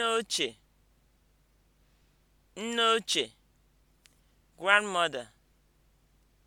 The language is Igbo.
nne ochie nne ochie grandmother